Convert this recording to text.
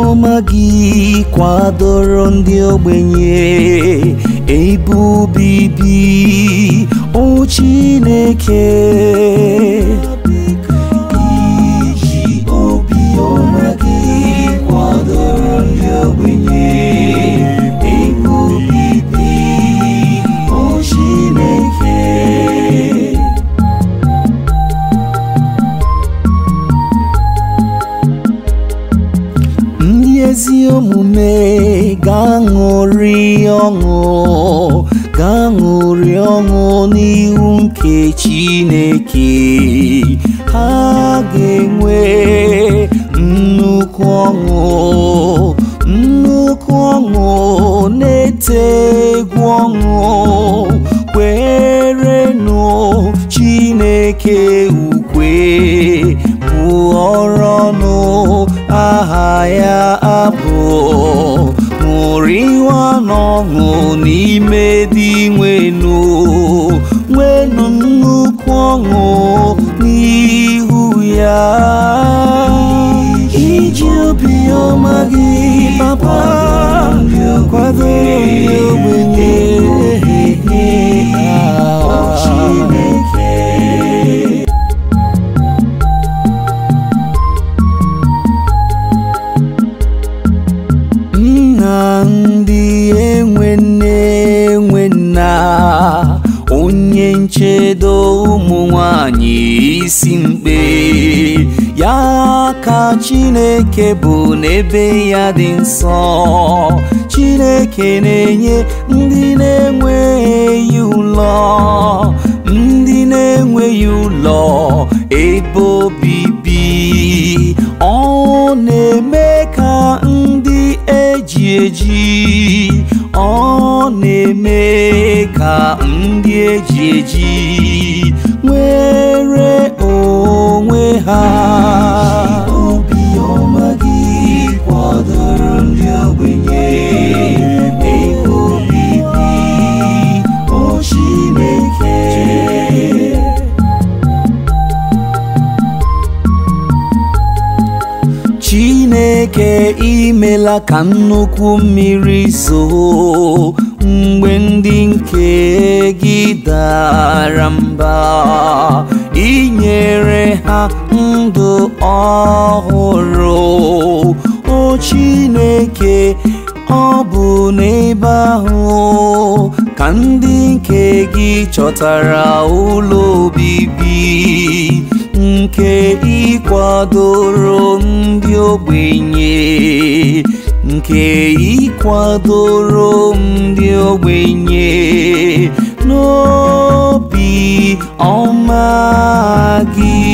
ọma gị kwadoro ndị ogbenye ebe obibi na-eke ezi omume ga-aṅụrị ọṅụ ga-aṅụrị ọṅụ n'ihu nke Chineke ha ga-enwe nnukwu ọṅụ nnukwu ọṅụ na-ete egwu ọṅụ kwerenụ Chineke ukwe bụ ọnụ aha ya bụ ṅụrịwa n'ọṅụ n'ime dị nwenu nwenu nnukwu ọṅụ chedo ụmụ nwanyị isi mkpe ya ka Chineke bụ n'ebe ya dị nsọ Chineke na-enye ndị na-enweghị ụlọ ndị na-enweghị ụlọ ebe obibi ọ na-eme ka ndị e eji eji ọ na-eme ka ndị eji eji nwere onwe ha chineke imela ka nnukwu mmiri zoo mgbe ndị nke gị dara mba inyere ha ndụ ọhụrụ o chineke ọ bụ n'ebe ahụ ka ndị nke gị chọtara ụlọ obibi nke ịkwadoro ndị ogbenye nke ịkwadoro ndị ogbenye n'obi ọma gị